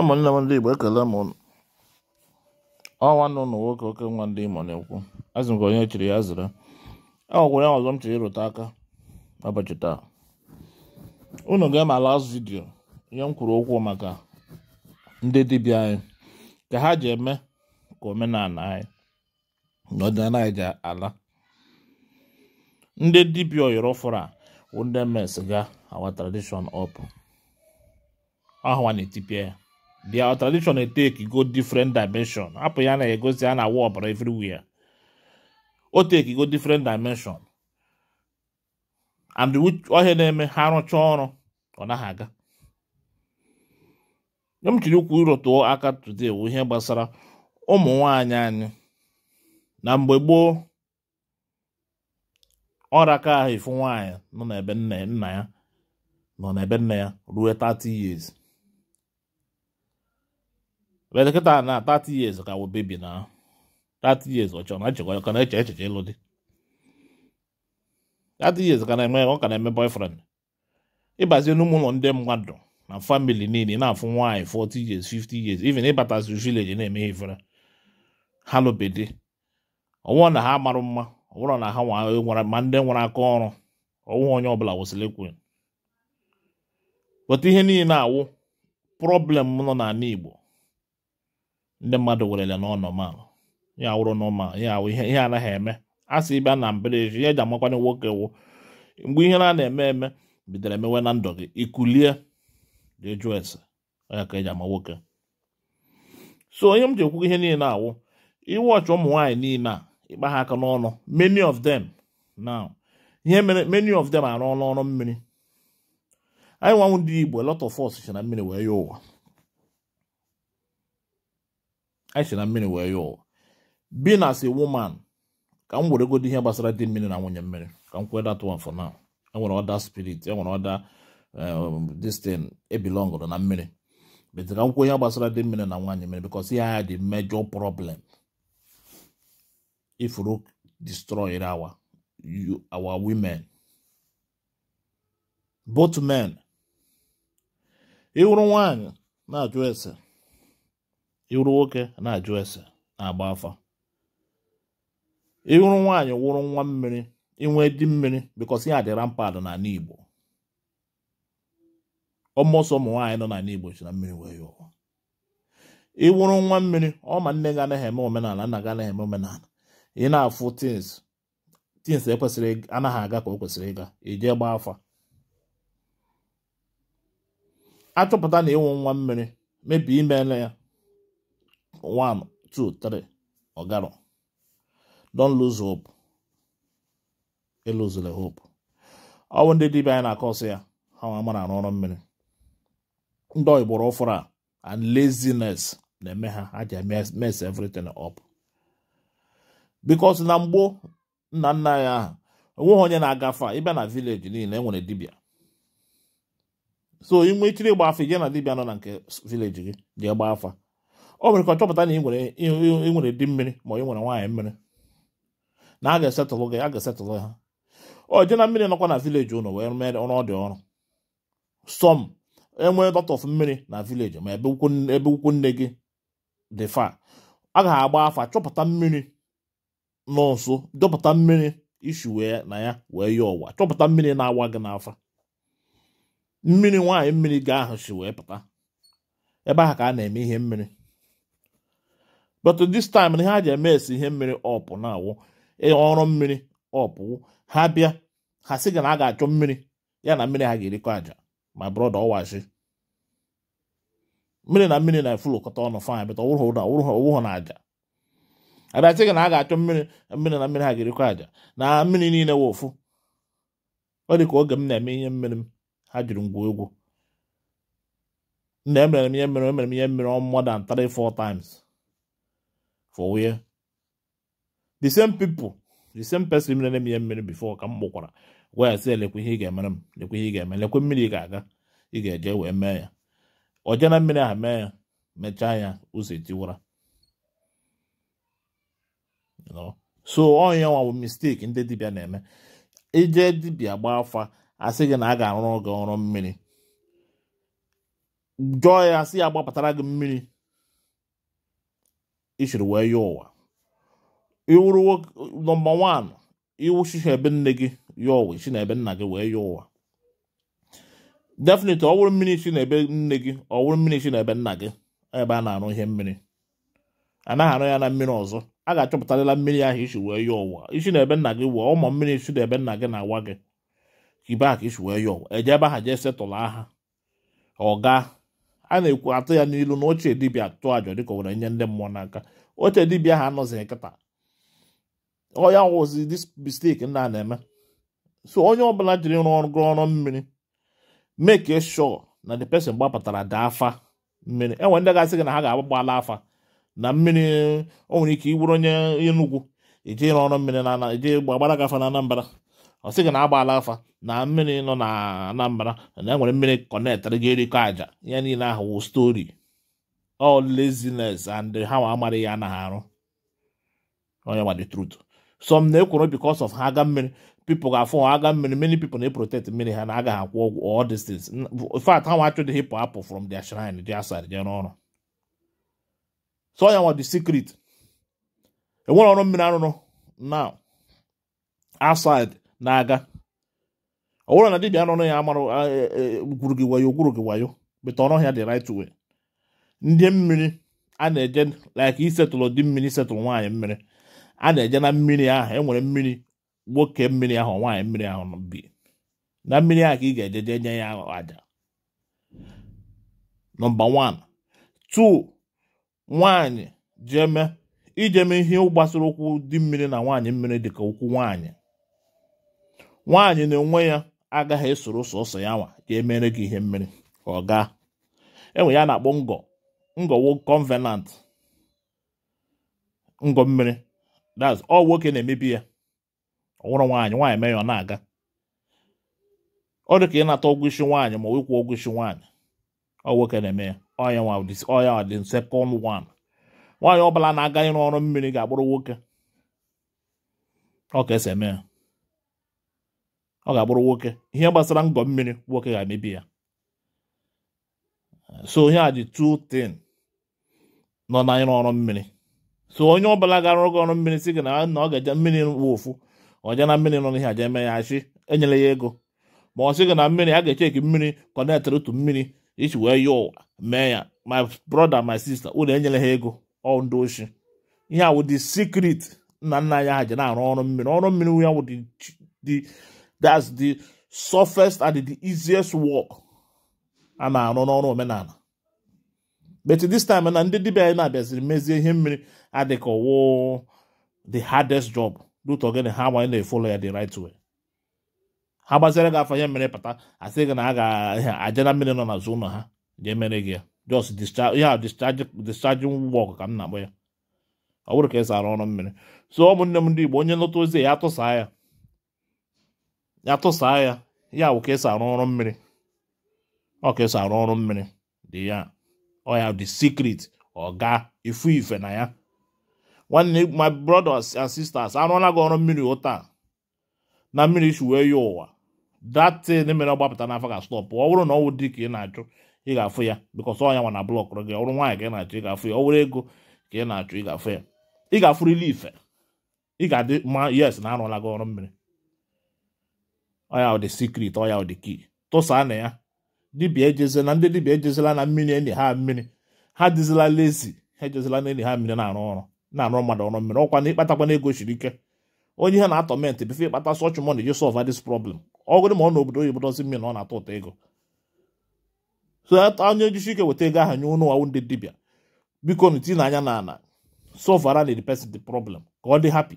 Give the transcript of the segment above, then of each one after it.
ụmụnne m ndị Igbo ekele m ụnụ ọ nwanne ụnụ nwoke oke nwa ndị Imo na-ekwu azụ nke onye chiri ya zere e nwekwara ya ọzọ m chiri ịrụta aka n'ụbọchị taa unu ga-eme last vidiyo ihe m kwuru okwu maka ndị dibịa anyị ka ha ji eme ka omenala anyị na ọdịnala anyị ji ala ndị dibịa oyiri fụrụ a wụ ndị mes ga awa tradishọn ọpụ ahụwa na-etipịa ya their tradition dey take go different dimension hapụ ya na-egosi a na-awa ọbara everywhere o take go different dimension and ọhịa na-eme ha rụcha ọrụ ọ naghị aga nye m chiri ukwu ịrụtụọ aka today wụ ihe gbasara ụmụ nwanyị anyị na mgbe gboo ọra ahụ ifu nwaanyị nọ n'ebe nna ya nọ n'ebe nna ya ruo 30 years elekọta na 30 years ka wụ na 30 years ọ chọrọ na achịkwa ka na ịlụ di 30 years ka na-eme ọ ka na-eme boyfriend ịbazie n'ụmụ ụlọ ndị mmadụ na famili niile na-afụ nwaanyị 40 years 50 years even ịbatazi village na-eme ifere ha lụbedi ọnwụọ na ha marụ mma ọ na ha nwere ma ndị nwere aka ọrụ ọnwụ onye ọbụla kwụsịrị ikwu pụta ihe niile na-awụ problem nọ n'ala Igbo ndị mmadụ werele na ọnọmal ya wụrụ nọmal ya awụ ihe anaghị eme a sị ịbịa na mberede ihe ji amakwanye nwoke wụ mgbe ihe na na-eme eme bidoro emewe na ndụ gị ikulie jụọ ese ya ka eji ama nwoke so onye m ji ekwugo ihe niile awụ iwe ọchị ụmụ nwaanyị niile a ịkpa ha aka n'ọnụ many of them now ihe mere many of them arụ mmiri anyị nwanwụ ndị Igbo lot of us si na mmiri wee ya ụwa anyị si na mmiri wee yọọ being as a woman ka m weregodi ihe gbasara dị mmiri na nwunye mmiri ka m kwee that one for now enwere ọda spirit enwere ọda um, this thing e na mmiri bete ka m ihe gbasara dị mmiri na nwaanyị mmiri because ihe agha dị major problem ifuru destroy our our women both men ịhụrụ nwaanyị na-ajụ ese ịwụrụ nwoke na-ajụ ese na-agba afa ịwụrụ nwaanyị wụrụ nwa mmiri inwe di mmiri bikọsi ya dịra mpad n'ala Igbo ọmọsọ ụmụ nwaanyị nọ n'ala Igbo si na mmiri wee yọọ ịwụrụ nwa mmiri ọ ma nne ga anaghị eme omenala nna ga anaghị eme omenala ị na-afụ tins tins ekwesịrị anaghị aga ka o kwesịrị ịga ijee gbaa afa achọpụta na ịnwụ nwa mmiri mebi imela ya one, two, three, ogaro. Don't lose hope. Elozula hope. Ọ bụ ndị dibịa na-akọsị ya ha na arụ ọrụ mmiri ndị oyigboro a and laziness na-eme ha ha ji mess everything up because na mgbo nna nna anyị ahụ onweghị onye na-agafe ịbịa na village niile e so inwe ịgba afa ije na dibịa nọ na nke village gị afa o nwere ka chọpụta na ị nwere di mmiri ma ị nwere nwaanyị mmiri na a ga-esetụlụ gị a ga-esetụlụ ha o je na mmiri nọkwa na vileji ụlọ wee mee ọrụ ọ dị ọrụ sọm enwee dọtọf mmiri na vileji ma ebe ukwu nne gị dị fa a ga-agba afa chọpụta mmiri nọ nso dọpụta mmiri ishi wee na ya wee ya ọwa chọpụta mmiri na-awa gị n'afa mmiri nwaanyị mmiri gaa ahụ si wee pụta ebe ahụ ka a na-eme ihe mmiri but this time na ha ji eme esi ihe mmiri ọpụ na-awụ ọrụ mmiri ọpụ ha bịa ha sị gị na a ga-achọ mmiri ya na mmiri ha ga-erikọ aja ma brọda ọwashi mmiri na mmiri na-efulokọta ọnụ fanyị bịta ọwụrụ na aja abịachi gị na a ga-achọ mmiri mmiri na mmiri ha ga-erikọ aja na mmiri niile wụ ofu ọ dị ka oge m na-eme ihe mmiri m ha jiri ngwa egwu na emere m ihe mmiri emere m ihe mmiri on more than three four times for where the same people the same person mere na ihe mmiri before ka m wey gwa ya ihe ị ga-emere m lekwe eme mmiri ị ga-aga ị ga-eje wee mee ya oje na mmiri ahụ mee ya mechaa ya ụzọ etiwara so onye nwa mistake ndị dibia na-eme ije dibia gba afa asị gị na a ga-arụrụ gị ọrụ mmiri jụọ ya sị ya gbapụtara gị mmiri isiri wee ya ụwa iwuru nọmba wan iwuchi ha ebe nne gị ya ụwa chi na ebe nna gị wee ya ụwa definite ọ wụrụ mmiri chi na ebe nne gị ọ wụrụ mmiri chi na ebe nna gị ebe a na-arụ ihe mmiri anaghị arụ ya na mmiri ọzọ a ga-achọpụtarịla mmiri ahụ isi wee ya ụwa isi na ebe nna gị wee ụmụ mmiri isi na ebe nna gị na-awa gị kibe aka isi wee ya ụwa eje ebe ha jee setụlụ aha ọ gaa a na-ekwu atụ ya n'ilu na oche dibịa atụ ajọ dịka o were nye ndị mmụọ n'aka oche dibịa ha anọzighị nkịta ọya wụzi dis mistake a na-eme so onye ọbụla jiri rụọ ọrụ mmiri make sure na the person gbapụtara daa afa mmiri enwe ndị gasị gị na ha ga-agbagbala afa na mmiri o nwere ike iburu onye Enugu ije ịrụ ọrụ mmiri na eje gbagbara gafa na Anambra ọ sị gị na agbaala afa na mmiri nọ na Anambra na enwere mmiri kọnetịrị gị erikọ àjà ihe niile ahụ wụ stori ọ laziness and ha nwa amaghị ya anaghị arụ onye gba the truth na-ekwuru because of ha aga mmiri people ga-afụ ha aga mmiri many people na protect mmiri ha na agaghị akwụ ọgwụ all these things in fact ha nwa achọghị hipụ apụ from dia shrine their side jere ọrụ so onye nwa the secret enwere ọrụ mmiri arụrụ na outside na-aga ọ bụrụ na dibịa nọ ya amarụ e, e, gwuru gị wayo gwuru gị wayo beta ọnụ ọhịa dị right way ndị mmiri a na-eje like isetụlụ dị mmiri setụlụ nwaanyị mmiri a na-eje na mmiri ahụ enwere mmiri nwoke mmiri ahụ nwaanyị mmiri ahụ bi na mmiri ahụ ka ị ga-eje jee nye ya aja nọmba 1 2 nwaanyị jeme ijeme ihe gbasara ụkwụ dị mmiri na nwaanyị mmiri dịka ụkwụ nwaanyị nwaanyị na onwe ya agaghị esoro ụsọ ụsọ ya nwa ka emere gị ihe mmiri ọ gaa enwe ya na-akpọ ngọ ngọwo convenant ngọ mmiri that's ọ nwoke na-emebi ya ọ nwụrụ nwaanyị nwaanyị mee ya ọ na-aga ọ dị ka ị nata ọgwụ isi nwaanyị ma ịkwụ ọgwụ isi nwaanyị ọ nwoke na-eme ya ọya ọya dị second wan nwaanyị ọ bụla na-aga ịrụ ọrụ mmiri ga-agbụrụ nwoke ọ ka esi eme ya ọ ga-abụrụ nwoke ihe gbasara ngọ mmiri nwoke ga-emebi ya so onye a ji 210 nọ na ịrụ ọrụ mmiri so onye ọbụla gara oge ọrụ mmiri si gị na na ọ ga-eje mmiri wụfu ọja na mmiri nọ n'ihe aja eme ya achị enyere ya ego ma ọ sị gị na mmiri a ga-echeki mmiri kọnetịrị otu mmiri iji wee ya ụwa mee ya my brother my sister ụlọ enyere ha ego ọ ndị ihe awụ dị secret nna nna anyị ha ji na-arụ ọrụ mmiri ọrụ mmiri ya wụ dị that's the softest and the easiest work a na-arụ n'ọrụ omenala but this time na ndị dibịa anyị na-abịaziri mezie ihe mmiri adịka ọwụ the hardest job dut ogene ha gbanye na-efolo ya the right way ha gbaziere gị afọ ihe mmiri pata asị gị na a ga-aja na mmiri nọ n'azụ ụlọ ha jee mere gị ya just ihe a discharging work ka m na-akpọ ya ọ bụrụ ka esi arụ ọrụ mmiri so ụmụnne m ndị Igbo onye nlọta ozi a ya tụsaa ya ya tụsaa ya ya wụ ka esi arụ ọrụ mmiri ọ ka esi arụ ọrụ mmiri dị ya ọ ya dị secret ọ ga ifu ife na ya nwanne my brothers and sisters arụọla gị ọrụ mmiri ụta na mmiri wee ya ụwa datin mere ọ gbapụta n'afọ ga stọpụ ọ bụrụ na ọ wụ dị ka ị na-achụ ị ga-afụ ya bikọs ọ ya nwa na blọk blọkụrụ gị ọrụ nwaanyị ka ị na-achụ ị ga-afụ ya ọ wụrụ ego ka ị na-achụ ị ga-afụ ya ị ga-afụrịla ife ị ga-adị ma yes na arụọla gị ọrụ mmiri ọya ọ dị sikrit ọya ọ dị kii tụsaa na ya dibịa ejezila ndị dibịa ejezila na mmiri enyi ha mmiri ha dịzila lezi ha ejezila na enyi ha mmiri na-arụ ọrụ na-arụ mmadụ ọrụ mmiri ọkwa na ịkpatakwa na ike onye ihe na-atọ ment befe ịkpata sọch mọni ji sọlva dis problem ọgụrụ ma ọ n'obodo oyibo dozi mmiri na ọ na-atọ ụtọ ego so onye ejisi ike weta ego ahụ nye ụnụ nwawu ndị dibia biko ntinye anya na ala sọlvara na the person the problem ka ọ dị hapi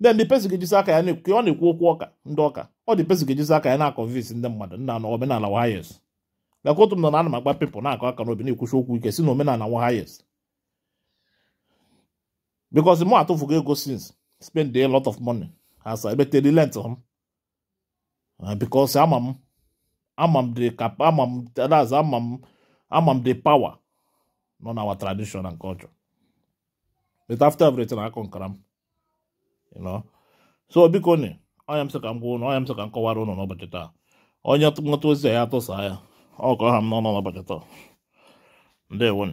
ndị ndị pesi ga-ejizi aka ya na ọ na-ekwu okwu ọka ndị ọka ọ dị pesi ga-ejizi aka ya na-akọnvinsi ndị mmadụ nna na omenala wahayes gakwa otu m nọ na ana m agba pepụl na-akọ aka n'obi na-ekwuchi okwu ike si na omenala wahayes because m atụfugo ego since spend a lot of money as I betere lent m uh, because ama m ama m the cap ama m that's ama m ama m the power nọ na our tradition nke culture but after everything akọ nkara m so biko na onye m sị ka m gwa ụnụ ọnya m sị ka m kọwara ụnụ n'ụbọchị taa onye ntụmọta ozi ya atụsa ya ọ kọọ ha m n'ọnụ n'ụbọchị taa ndewo